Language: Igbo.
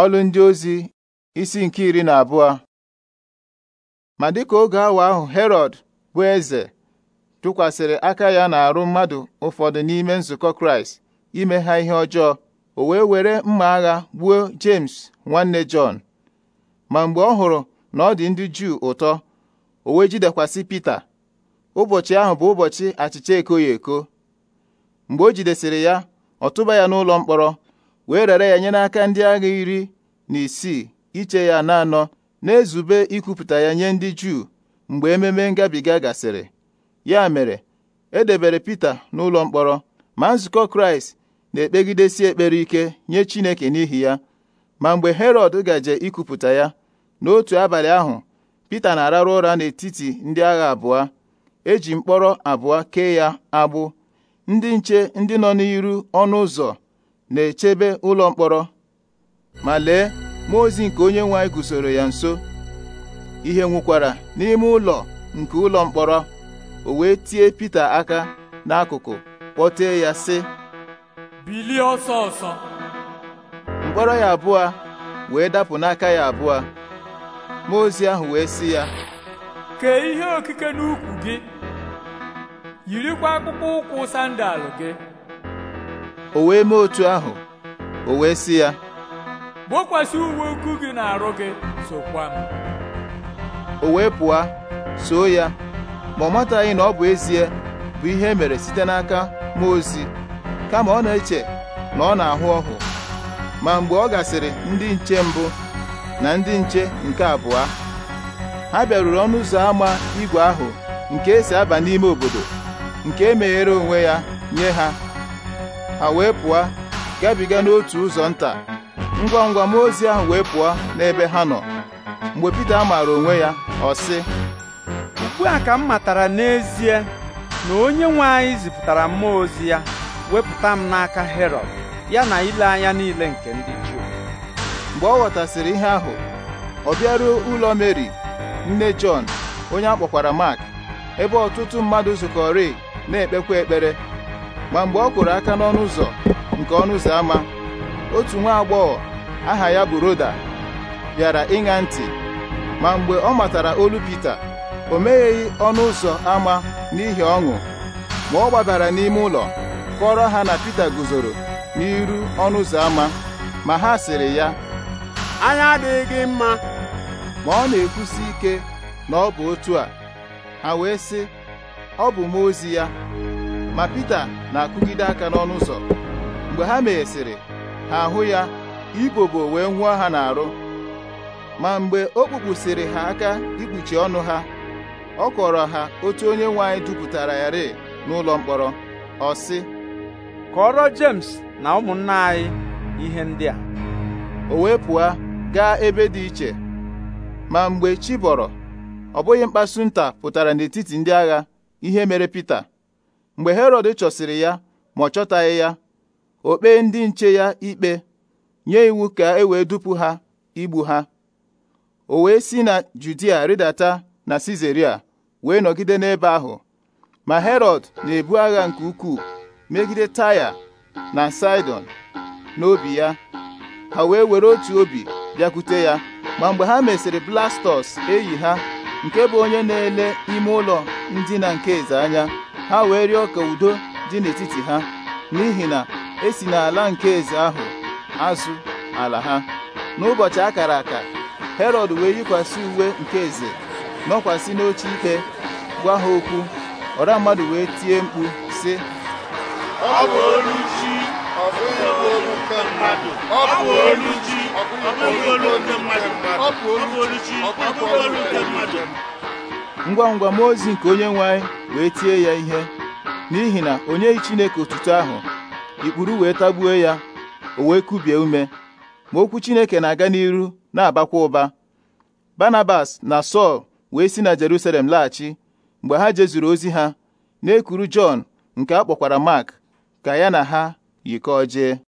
Ọlụ ndị ozi isi nke iri na abụọ ma dịka oge awa ahụ Herọd bụ eze tụkwasịrị aka ya na-arụ mmadụ ụfọdụ n'ime nzukọ Kraịst ime ha ihe ọjọọ o wee were mma agha gbuo James nwanne Jọn ma mgbe ọ hụrụ na ọ dị ndị Juu ụtọ o wee jidekwasị Pita ụbọchị ahụ bụ ụbọchị achịcha ekoghị eko mgbe o jidesịrị ya ọ tụba ya n'ụlọ mkpọrọ wee rere ya nye n'aka ndị agha iri na isii iche ya na anọ na-ezube ikwupụta ya nye ndị Juu mgbe ememe ngabiga gasịrị ya mere e edebere Pita n'ụlọ mkpọrọ ma nzukọ Kraịst na-ekpegidesi ekpere ike nye Chineke n'ihi ya ma mgbe herod gaje ikwupụta ya n'otu abalị ahụ Pita na-ararụ ụra n'etiti ndị agha abụọ eji mkpọrọ abụọ kee ya agbụ ndị nche ndị nọ n'iru ọnụ ụzọ na-echebe ụlọ mkpọrọ ma lee mmụọ ozi nke onye nwe anyị ya nso ihe nwukwara n'ime ụlọ nke ụlọ mkpọrọ o wee tie Pita aka n'akụkụ kpọtee ya sị bilie ọsọ ọsọ mkpọrọ ya abụọ wee dapụ n'aka ya abụọ mmụọ ozi ahụ wee si ya kee ihe okike n'ukwu gị yirikwa akpụkpọ ụkwụ sandal gị o wee mee otu ahụ o wee sị ya gbokwasị uwe ukwu gị na-arụ gị sokwa m o wee pụọ soo ya ma ọ mataghị na ọ bụ ezie bụ ihe e mere site n'aka mmụọ ozi kama ọ na-eche na ọ na-ahụ ọhụ ma mgbe ọ gasịrị ndị nche mbụ na ndị nche nke abụọ ha bịaruru ọnụ ụzọ ámá ígwè ahụ nke esi aba n'ime obodo nke e meghere onwe ya nye ha ha wee pụọ gabiga n'otu ụzọ nta ngwa ngwa mmụọ ozi ahụ wee pụọ n'ebe ha nọ mgbe Pita maara onwe ya ọ sị ugbu a ka m matara n'ezie na onye nwe anyị zipụtara mmụọ ozi ya wepụta m n'aka herod ya na ile anya niile nke ndị Juu mgbe ọ ghọtasịrị ihe ahụ ọ bịaruo ụlọ Meri nne Jọn onye akpọkwara Mak ebe ọtụtụ mmadụ zukọrị na-ekpekwa ekpere ma mgbe ọ kụrụ aka n'ọnụ ụzọ nke ọnụ ụzọ ámá otu nwa agbọghọ aha ya bụ Roda bịara ịṅa ntị ma mgbe ọ matara olu Pita o megheghị ọnụ ụzọ ámá n'ihi ọṅụ ma ọ gbabara n'ime ụlọ kọrọ ha na Pita guzoro n'iru ọnụ ụzọ ámá ma ha sịrị ya anya adịghị gị mma ma ọ na-ekwusi ike na ọ bụ otu a ha wee sị ọ bụ m ozi ya ma Pita na-akụgide aka n'ọnụ ụzọ mgbe ha meghesịrị ha ahụ ya ibobo wee nwụọ ha n'arụ ma mgbe o kpupụsịrị ha aka ikpuchi ọnụ ha ọ kọrọ ha otu onye nwe anyị dupụtara ya rịị n'ụlọ mkpọrọ ọ sị kọrọ James na ụmụnna anyị ihe ndị a o wee pụọ gaa ebe dị iche ma mgbe chi bọrọ ọ bụghị mkpasu nta pụtara n'etiti ndị agha ihe mere Pita mgbe herọd chọsịrị ya ma ọ chọtaghị ya o kpee ndị nche ya ikpe nye iwu ka e wee dupu ha igbu ha o wee si na judia ridata na sizeria wee nọgide n'ebe ahụ ma herod na-ebu agha nke ukwuu megide taya na saidon n'obi ya ha wee were otu obi bịakwute ya ma mgbe ha mesịrị blastọs eyi ha nke bụ onye na-ele ime ụlọ ndina nke eze anya ha wee rịọ ka udo dị n'etiti ha n'ihi na esi n'ala nke eze ahụ azụ ala ha n'ụbọchị akara aka herọd wee yikwasị uwe nke eze nọkwasị n'oche ikpe gwa ha okwu ọra mmadụ wee tie mkpu sị ọ bụ olu olu nke mmadụ ngwa ngwa mmụọ ozi nke onye nwe wee tie ya ihe n'ihi na onye Chineke otuto ahụ ikpuru wee tagbuo ya o wee kubie ume ma okwu Chineke na-aga n'iru na-abakwa ụba Barnabas na Sọl wee si na Jerusalem laghachi mgbe ha jezuru ozi ha na-ekuru Jọn nke a kpọkwara Mark ka ya na ha yikọọ jee